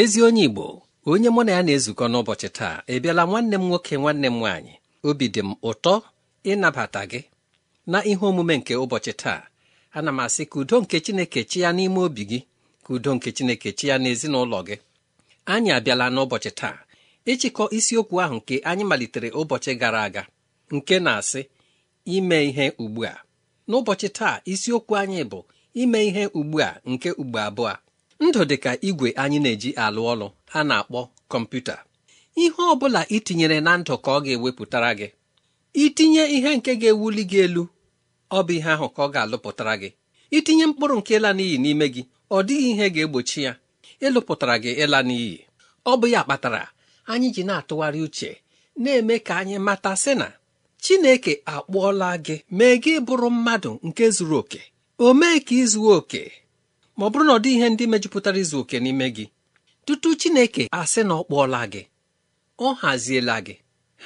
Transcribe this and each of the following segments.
ezi onye igbo onye mụ na ya na-ezukọ n'ụbọchị taa ị bịala nwanne m nwoke nwanne m nwaanyị obi dị m ụtọ ịnabata gị na ihe omume nke ụbọchị taa ana m asị ka udo nke chineke chi ya n'ime obi gị ka udo nke chineke chi ya n'ezinụlọ gị anyị abịala n'ụbọchị taa ịchịkọ isiokwu ahụ nke anyị malitere ụbọchị gara aga nke na-asị ime ihe ugbu a n'ụbọchị taa isiokwu anyị bụ ime ihe ugbu a nke ugbo abụọ ndụ dị ka igwe anyị na-eji alụ ọlụ a na-akpọ kọmputa ihe ọ bụla itinyere na ndụ ka ọ ga-ewepụtara gị itinye ihe nke ga-ewuli gị elu ọ bụ ihe ahụ ka ọ ga-alụpụtara gị itinye mkpụrụ nke ịla n'iyi n'ime gị ọ dịghị ihe ga-egbochi ya ịlụpụtara gị ịla n'iyi ọ bụ ya kpatara anyị ji na-atụgharị uche na-eme ka anyị mata sị na Chineke akpọọla gị mee gị bụrụ mmadụ nke zuru oke o mee ka ị oke ma ọ bụrụ na ọ dị ihe ndị mejupụtara izu oke n'ime gị tutu Chineke asị na ọ kpụọla gị ọ haziela gị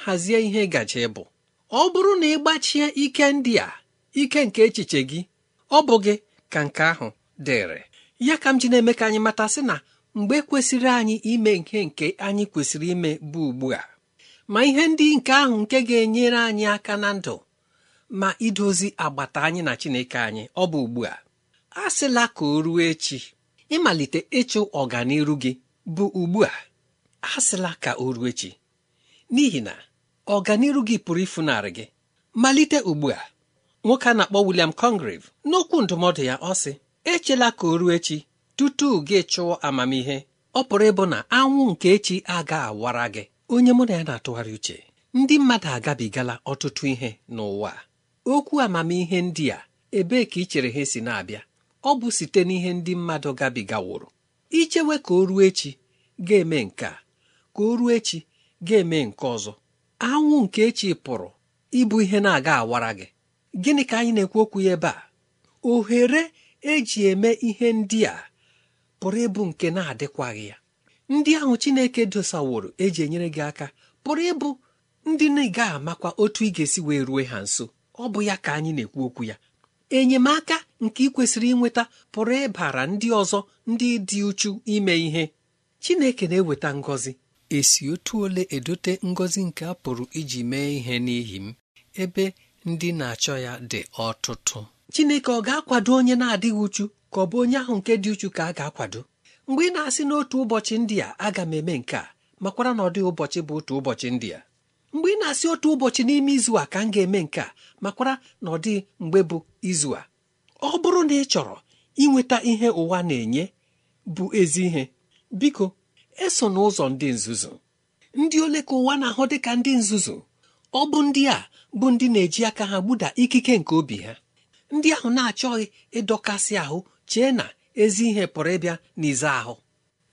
hazie ihe gaje bụ ọ bụrụ na ị gbachie ike ndị a ike nke echiche gị ọ bụ gị ka nke ahụ dịrị ya ka m ji na-eme ka anyị mata sị na mgbe kwesịrị anyị ime ihe nke anyị kwesịrị ime bụ ugbu a ma ihe ndị nke ahụ nke ga-enyere anyị aka na ndụ ma idozi agbata anyị na Chineke anyị ọ bụ ugbu a asịla ka o ruo echi ịmalite ịchụ ọganiru gị bụ ugbu a asịla ka o ruo echi n'ihi na ọganiru gị pụrụ ịfụnarị gị malite ugbu a nwoke a na-akpọ William Congreve n'okwu ndụmọdụ ya ọ sị echela ka o ruo echi tutu gị chụọ amamihe ọ pụrụ ịbụ na anwụ nke echi aga awara gị onye mụ na ya na-atụgharị uche ndị mmadụ agabigala ọtụtụ ihe n'ụwa okwu amamihe ndị a ebee ka ị chere ha si na-abịa ọ bụ site n'ihe ndị mmadụ gabigaworo ichewe ka o ruo echi ga-eme nke a ka o ruo echi ga-eme nke ọzọ anwụ nke echi pụrụ ịbụ ihe na-aga awara gị gịnị ka anyị na-ekwu okwu ya ebe a ohere eji eme ihe ndị a pụrụ ịbụ nke na-adịkwaghị ya ndị ahụ Chineke dosaworo eji enyere gị aka pụrụ ịbụ ndị na ị amakwa otu ị ga-esi wee rue ha nso ọ bụ ya ka anyị na-ekwu okwu ya enyemaka nke ị kwesịrị inweta pụrụ ịbara ndị ọzọ ndị dị uchu ime ihe Chineke na-eweta ngọzi esi otu ole edote ngọzi nke a pụrụ iji mee ihe n'ihi m ebe ndị na-achọ ya dị ọtụtụ Chineke ọ ga-akwado onye na-adịghị uchu ka ọ bụ onye ahụ nke dị uchu ka a ga-akwado mgbe ị na-asị n'otu ụbọchị ndị a aga m eme nke a makwara na ọ dịghị ụbọchị bụ otu ụbọchị ndị a mgbe ị na-asị otu ụbọchị n'ime izu a ka m ga-eme nke a makwara na ọ dịghị mgbe bụ izu a ọ bụrụ na ị chọrọ inweta ihe ụwa na-enye bụ ezi ihe biko eso n'ụzọ ndị nzuzu ndị ole ka ụwa na-ahụ dị ka ndị nzuzu ọ bụ ndị a bụ ndị na-eji aka ha gbuda ikike nke obi ha ndị ahụ na-achọghị ịdọkasị ahụ chee na ezi ihe pụrụ ịbịa n'ize ahụ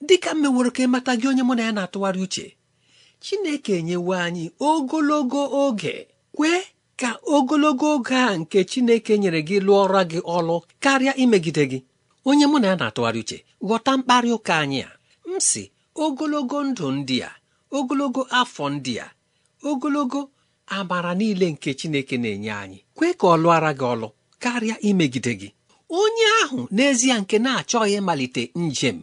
dịka mmeworo ka ịmata gị onye mụ na ya na-atụgharị uche Chineke enyewo anyị ogologo oge kwee ka ogologo oge a nke Chineke nyere gị lụọra gị ọlụ karịa imegide gị onye mụ na ya na-atụgharị uche ghọta mkparị ụka anyị a m sị ogologo ndụ ndị a ogologo afọ ndị a ogologo amara niile nke Chineke na-enye anyị kwe ka ọ lụọra gị ọlụ karịa imegide gị onye ahụ n'ezie nke na-achọghị ịmalite njem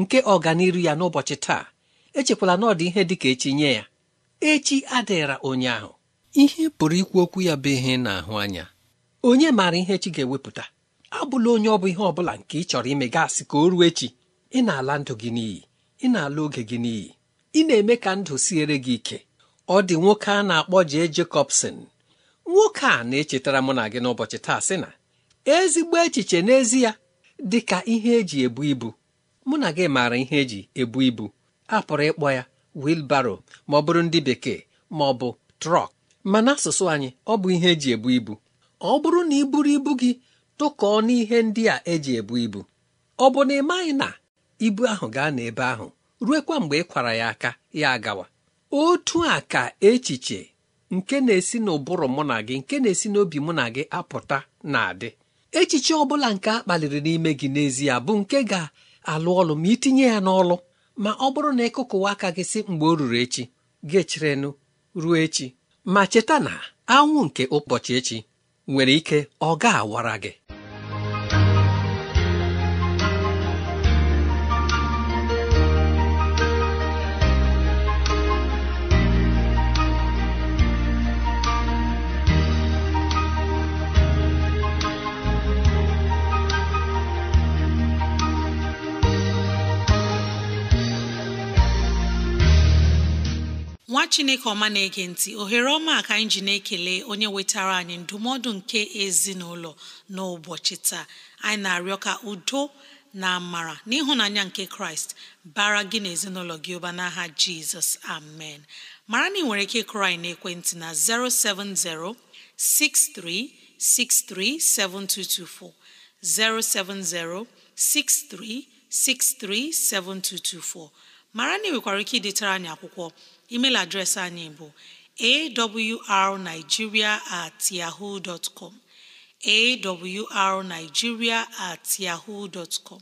nke ọganiru ya n'ụbọchị taa echekwala na ọ dị ihe dị ka echi nye ya echi adịghịra onye ahụ ihe pụrụ ikwu okwu ya bụ ihe na-ahụ anya onye maara ihe chi ga-ewepụta abụla onye ọ bụ ihe ọ bụla nke ị chọrọ ime gasị ka o ruo echi ị na-ala ndụ gị n'iyi ị na-ala oge gị n'iyi ị na-eme ka ndụ siere gị ike ọ dị nwoke a na-akpọ J. Jacobson nwoke a na-echetara mụ na gị n'ụbọchị taa sị na ezigbo echiche n'ezie dị ka ihe eji ebu ibu mụ na gị maara ihe eji ebu ibu a pụrụ ịkpọ ya wilbaro ma ọ bụrụ ndị bekee ma ọ bụ trọk ma n'asụsụ anyị ọ bụ ihe eji ebu ibu ọ bụrụ na ị buru ibu gị tụkọọ n'ihe ndị a eji ebu ibu ọ bụ na ị maghị na ibu ahụ gaa n'ebe ahụ ruekwa mgbe ị kwara ya aka ya agawa otu a ka echiche nke na-esi n'ụbụrụ mụ na gị nke na-esi n'obi mụ na gị apụta na-adị echiche ọ bụla nke a kpaliri n'ime gị n'ezie bụ nke ga-alụ ọlụ ma itinye ya n'ọlụ ma ọ bụrụ na ịkụkụwa aka gị si mgbe o ruru echi gị cherenu ruo echi ma cheta na anwụ nke ụbọchị echi nwere ike ọ ga-awara gị nwa chineke ọma na-ege ntị ohere ọma ka anyị ji na-ekele onye wetara anyị ndụmọdụ nke ezinụlọ n'ụbọchị taa anyị na-arịọ ka udo na amara n'ịhụnanya nke kraịst bara gị na ezinụlọ gị ụba n'aha jizọs amen mara na ị nwere ike ịkụrụ anyị ekwentị na 070 6363 7224 070 7224 mara na ị nwekwara ike idetara anyị akwụkwọ email adreesị anyị bụ awrnigeria at yahoo dot com awrnigeria at yahoo dot com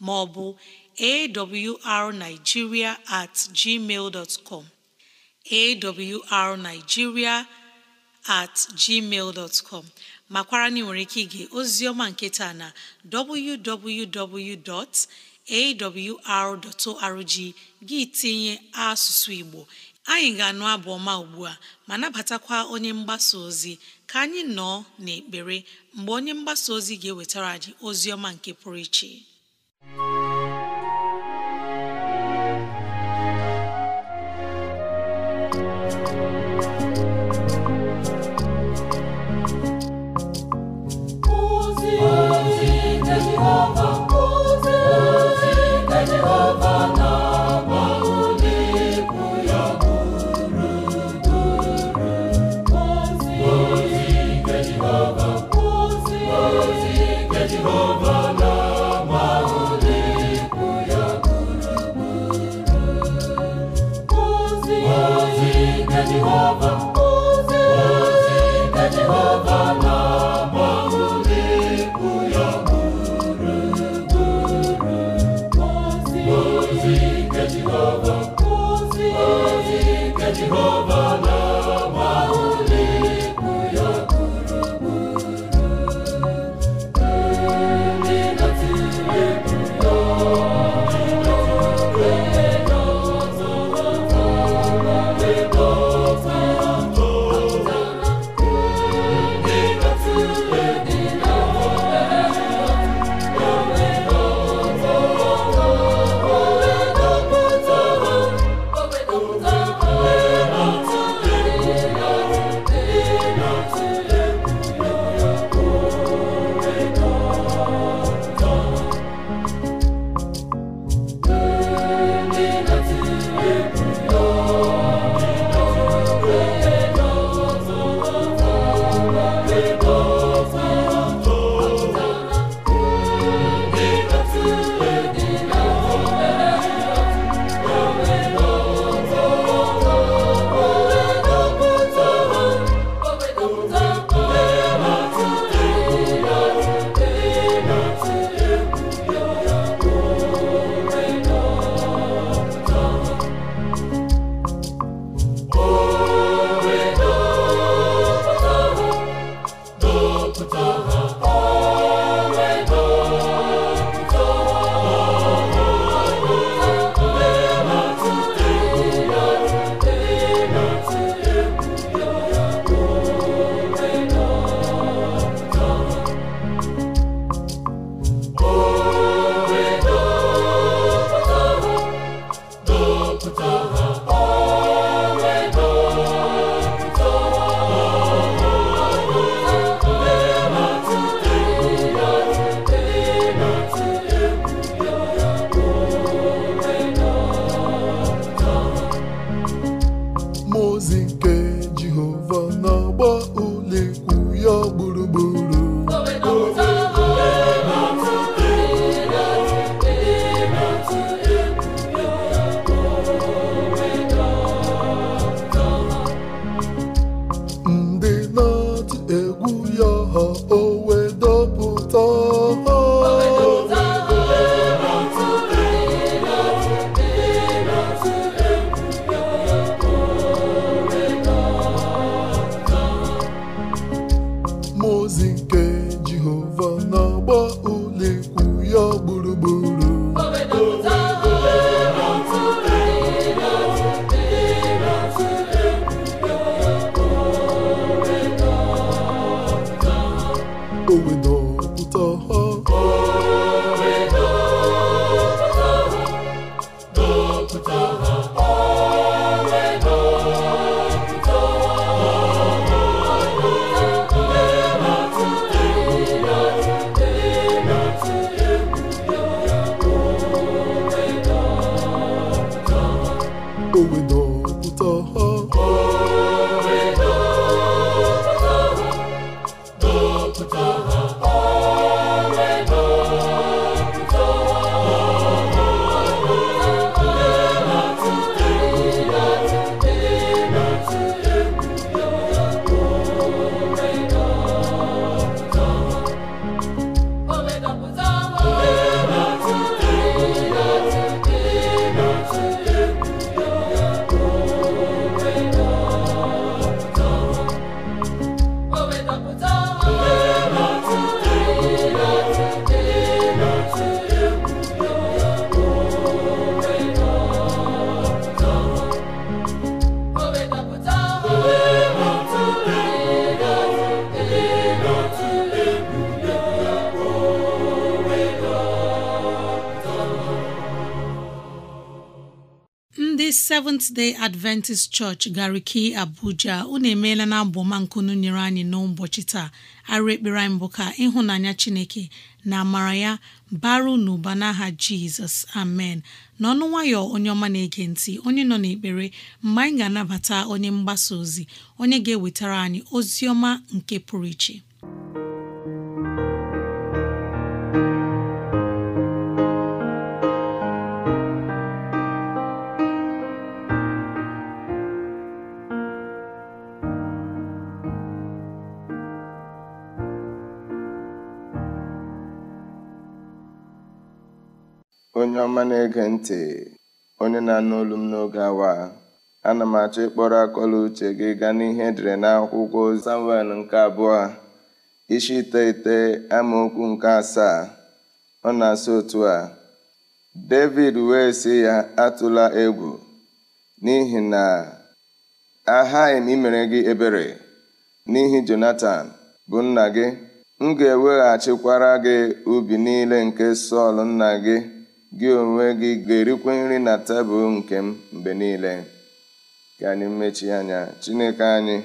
maọbụ awrnigeria at gmail dot com awrnigeria at gmail dot com makwara na nwere ike ige ozi ọma nketa na www.awr.org gị tinye asụsụ Igbo anyị ga-anụ abụ ọma ugbu a ma nabatakwa onye mgbasa ozi ka anyị nọọ n'ekpere mgbe onye mgbasa ozi ga-ewetara anyị ozi ọma nke pụrụ iche go Seventh Day Adventist Church Gariki Abuja unu emeela na abụọma nkunu nyere anyị n'ụbọchị taa arụ ekpere anyị bụ ka ịhụnanya Chineke na amara ya baru n'ụba n'aha Jizọs amen n'ọnụ nwayọ onye ọma na-ege ntị onye nọ n'ekpere mgbe anyị ga-anabata onye mgbasa ozi onye ga-ewetara anyị ozi ọma nke pụrụ iche onye ọma na-ege ntị onye na-anụ olu m n'oge awa ana m achọ ịkpọrọ akọla uche gị gaa n'ihe edere n'akwụkwọ Samuel nke abụọ isi iteghete amaokwu nke asaa ọ na-asị otu a David wee si ya atụla egwu n'ihi na aghaghị m imere gị ebere n'ihi jonathan bụ nna gị m ga-eweghachikwara gị ubi niile nke Sọl nna gị gị onwe gị ga-erikwa nri na tebụl nke m mgbe niile ka anyị mechie anya Chineke anyị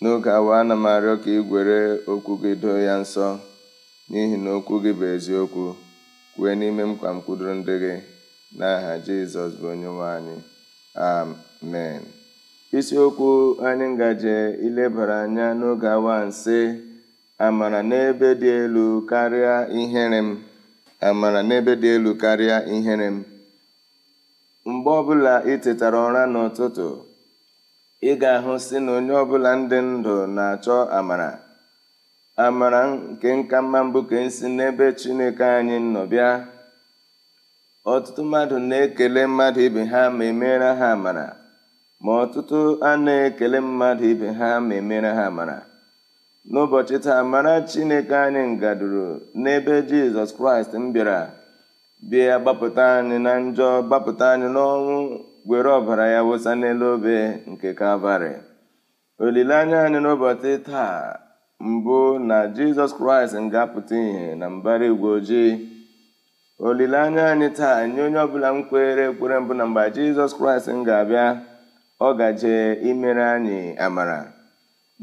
n'oge awa ana m arịọ ka ị gwere okwu gị doo ya nsọ n'ihi na okwu gị bụ eziokwu kwue n'ime m kwa ndị gị n'aha Jizọs bụ onyenwe anyị amen isiokwu anyị ngaje ilebara anya n'oge awa nsị amara n'ebe dị elu karịa ihere m amara n'ebe dị elu karịa ihere m mgbe ọbụla ị tetara ụra n'ụtụtụ ị ga-ahụ si na onye ọbụla ndị ndụ na-achọ amara amara nke nka mma mbụ ka e si n'ebe Chineke anyị nọ bịa ọtụtụ mmadụ na-ekele mmadụ ibe ha ma emere ha amara ma ọtụtụ a na-ekele mmadụ ibe ha ma emere ha amara n'ụbọchị taa mara chineke anyị ngaduru n'ebe jizọs kraịst m bịara bịa gbapụta anyị na njọ gbapụta anyị n'ọnwụ were ọbara ya wụsa n'elu obe nke kalvarị olileanya anyị n'ụbọchị taa mbụ na jizọs kraịst ga-apụta ihe na mbara igwe ojii olileanya anyị taa nye onye ọbụla m kwere ekwere mbụ na mgbe jizọs kraịst m ga-abịa ọ gaje imere anyị amara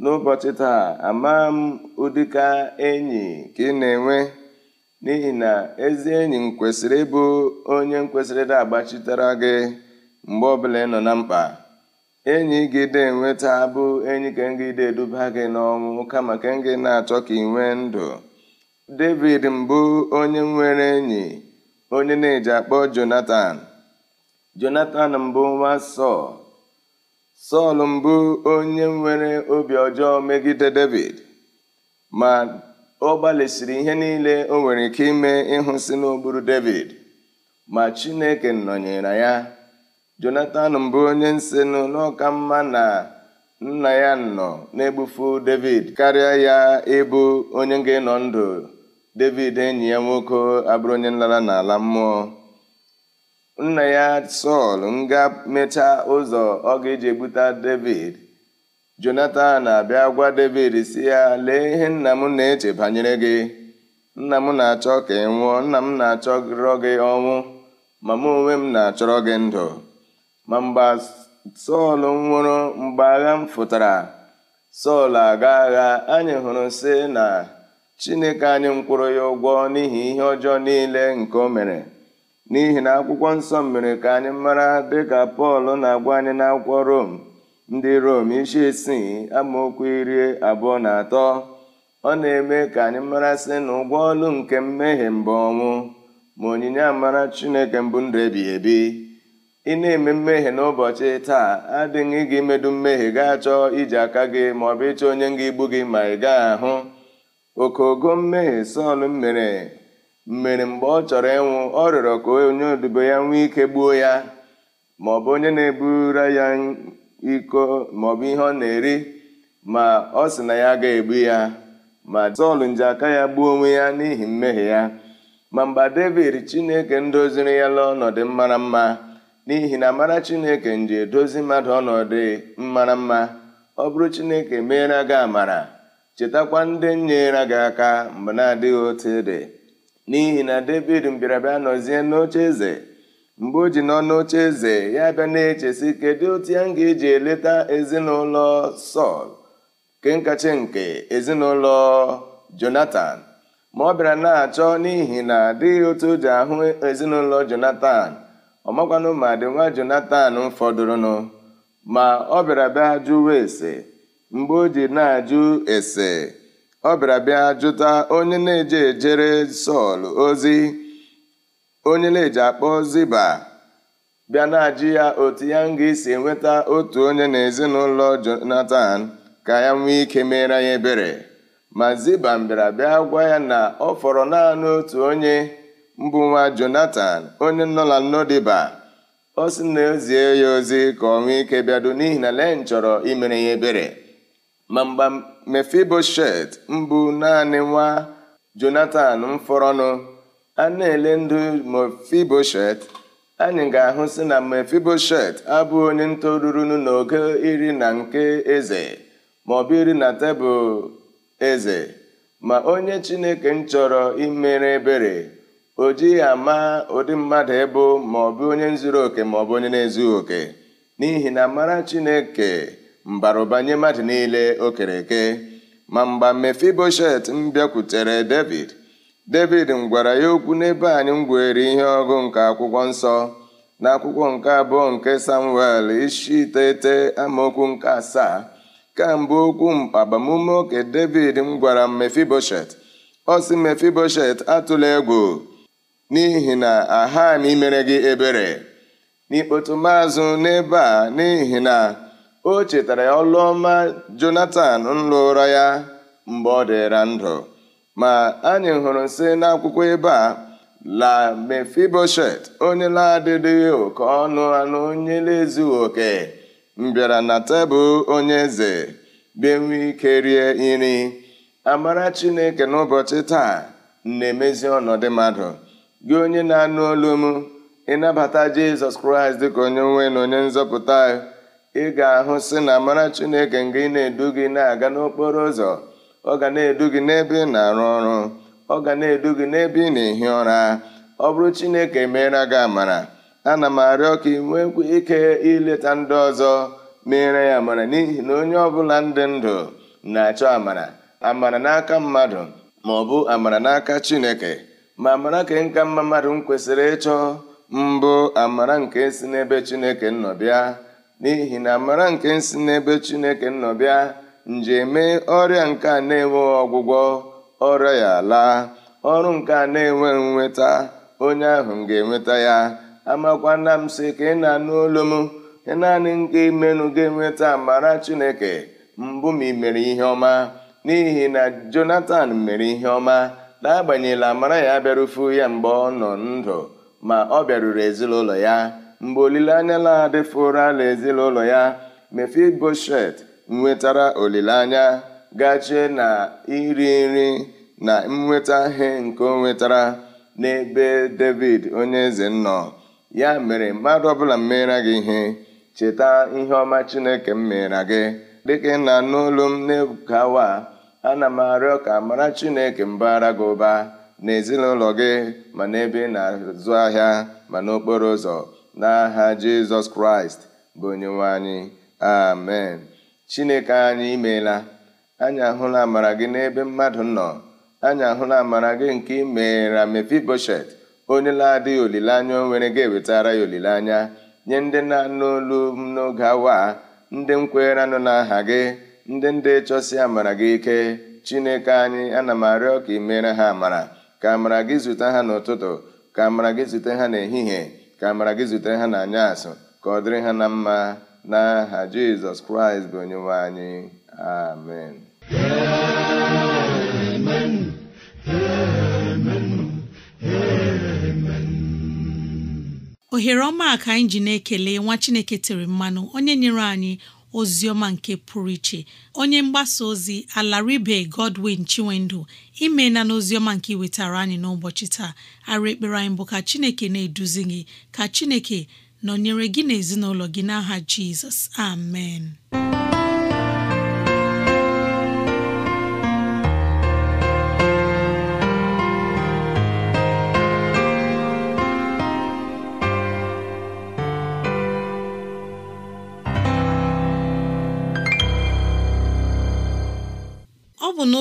n'ụbọchị taa amaa m ụdịka enyi ka ị na-enwe n'ihi na ezi enyi m kwesịrị ịbụ onye m kwesịrị ịda agbachitere gị mgbe ọbụla ị nọ na mkpa enyi gị na-enweta bụ enyi ka gị na-eduba gị n'ọnwụ kama ka na-achọ ka ị nwee ndụ David mbụ onye nwere enyi onye na-eji akpọ Jonatan Jonatan mbụ nwa Sọl Sọl mbụ onye nwere obi ọjọọ megide David ma ọ gbalịsiri ihe niile o nwere ike ime ịhụ si n'ogburu David ma Chineke nọnyere ya Jonatan mbụ onye nsenụ n'ọka mma na nna ya nọ na-egbufu David karịa ya ịbụ onye nga enọ ndụ David enyi ya nwoke abụrụ onye nlara n'ala mmụọ nna ya sọl nga mechaa ụzọ ọ ga-eji egbute david jonatan na-abịa gwa david si ya lee ihe nna m na-eche banyere gị nna m na-achọ ka ị nwụọ nna m na-achọrọ gị ọnwụ ma m onwe m na-achọrọ gị ndụ ma mgbe sọl nwụrụ mgbe agha m fụtara sọl aga agha anyị hụrụ si na chineke anyị m kwụrụ ya ụgwọ n'ihi ihe ọjọọ niile nke o mere n'ihi na akwụkwọ nsọ mere ka anyị mara dịka pọl na-agwa anyị n'akwụkwọ rom ndị rom isi isii amaokwu iri abụọ na atọ ọ na-eme ka anyị mara sị na ụgwọ ọlụ nke mmehie mbụ ọnwụ ma onyinye amara chineke mbụ ndụ ebighị ebi ị na-eme mmehie n'ụbọchị taa adịghị gị imedu mmehie gaa chọọ iji aka gị ma ọ bụ ịchọ onye nga igbu gị ma ị gaa ahụ okogo mmehie Sọl mere mere mgbe ọ chọrọ ịnwụ ọ rịọrọ ka onye odibo ya nwee ike gbuo ya bụ onye na-ebura ya iko maọbụ ihe ọ na-eri ma ọ sị na ya ga-egbu ya ma Sọl nji aka ya gbuo onwe ya n'ihi mmehie ya ma mgbe David Chineke ndoziri ya n'ọnọdụ mara mma n'ihi na amara Chineke nji edozi mmadụ ọnọdụ mara mma ọ bụrụ Chineke meere gị amara chetakwa ndị nyere gị aka mgbe na-adịghị otu dị n'ihi na david mbịara bịa nọzie n'oche eze mgbe o ji nọ n'oche eze ya bịa na-echesi kedu otu ya m ga-eji eleta ezinụlọ sọl kenkachi nke ezinụlọ jonatan ma ọ bịara na-achọ n'ihi na adịghị otu o ji ahụ ezinụlọ jonatan ọ makwanụ ma dị nwa jonatan fọdụrụnụ ma ọ bịara bịa jụwa ese mgbe o ji na-ajụ ese ọ bịara bịa jụta onye na-eje ejere Sọl ozi onye na-eji akpọ Ziba bịa na-ajụ ya otu ya nga isi enweta otu onye na ezinụlọ jonathan ka ya nwee ike mere ya ebere ma Ziba bịara bịa gwa ya na ọ fọrọ naanị otu onye mbụ nwa jonathan onye nọ na Nọdiba ọ sị na ezie ya ozi ka ọ nwee ike bịado n'ihi na len chọrọ imere ya ebere ma mgba mefiboshet mbụ naanị nwa jonatan mfọrọnụ a na-ele ndụ mefiboshet anyị ga-ahụsị ahụ na mefiboshet abụ onye ntorurunu n'oge iri na nke eze ma ọ bụ iri na tebụl eze ma onye chineke m chọrọ imere ebere o jighị ama ụdị mmadụ ịbụ maọbụ onye zuru oke maọbụ onye na-ezughị oke n'ihi na mara chineke mbaruba nye mmadụ niile o kere ma mgba mefiboshet m bịakwutere david david m gwara ya okwu n'ebe anyị m gwere ihe ọgụ nke akwụkwọ nsọ n'akwụkwọ nke abụọ nke samuel ishi iteghete amaokwu nke asaa kemgbe okwu agbamume oke david m gwara mefiboshet ọ mefiboshet atụla egwu n'ihi na aha m imere gị ebere n'ikpotu maazụ n'ebe a n'ihi na o chetara ọlụ ọma Jonatan nlụra ya mgbe ọ dịra ndụ ma anyị hụrụ sị n'akwụkwọ ebe a la mefiboshet onye na-adịghị oke ọnụ anụ onye na-ezughị oke mbịara na tebụl onye eze benwe ike rie nri amara chineke n'ụbọchị taa na-emezi ọnọdụ mmadụ gị onye na-anụ olu m ịnabata jizọs kraịst dịka onye nwe na onye nzọpụta ị ga-ahụ sị na mara Chineke nga ị na-edu gị na-aga n'okporo ụzọ ọ ga na-edu gị n'ebe ị na-arụ ọrụ ọ ga na-edu gị n'ebe ị na-ehi ụra ọ bụrụ Chineke meere gị amara ana m arịọ ka ị nwee ike ileta ndị ọzọ mere ya amara n'ihi na onye ọbụla ndị ndụ na-achọ amara amara n'aka mmadụ ma ọ bụ amara n'aka Chineke ma amara ka nka mma mmadụ m kwesịrị ịchọ mbụ amara nke si n'ebe Chineke nọ bịa n'ihi na amara nke si n'ebe Chineke nọ bịa nje mee ọrịa nke a na-enweghị ọgwụgwọ ọrịa ya laa ọrụ nke a na enwe nweta onye ahụ ga-enweta ya amakwana m sị ka ị na-anụ olu m naanị nke imenụ ga-enweta amara Chineke mbụ ma ị mere ihe ọma n'ihi na Jonatan mere ihe ọma n'agbanyeghị amara ya bịarufu ya mgbe ọ nọ ndụ ma ọ bịaruru ezinụlọ ya mgbe olileanya na-adịfuro ala ezinụlọ ya mefiboshet nwetara olileanya gachie na iri nri na nnweta ihe nke o nwetara n'ebe david onye eze nọ ya mere mmadụ ọbụla mmera gị ihe cheta ihe ọma chineke m meera gị dịka ị na-anụ m na-ebukawa ana m arịọ ka mara chineke mbara gị ụba n'ezinụlọ gị ma n'ebe ị na-azụ ahịa ma n'okporo ụzọ n'aha jizọs kraịst bụ nwe anyị amen chineke anyị imeela anyị ahụla amara gị n'ebe mmadụ nọ anyị ahụla amara gị nke imeera mefiboshet onye na-adịghị olileanya onwere nwere ga-ewetara ya olileanya nye ndị na-anụ m n'oge awa ndị nkwere anụ n'aha gị ndị ndị chọsi amara gị ike chineke anyị ana m arịọ ka imere ha amara ka amara gị zute ha n'ụtụtụ ka amara gị zute ha n'ehihie ka amara gị zutere ha n'anya asụ ka ọ dịrị ha na mma n'aha jizọs kraịst bụ onyenwe anyị amen ohere ọma ka anyị ji na-ekele nwa chineke tere mmanụ onye nyere anyị ozioma nke pụrụ iche onye mgbasa ozi alaribe godwin chinwendu imeela n'Ozioma nke iwetara anyị n'ụbọchị taa ara ekpere anyị bụ ka chineke na-eduzi gị ka chineke nọnyere gị na ezinụlọ gị n'aha jizọs amen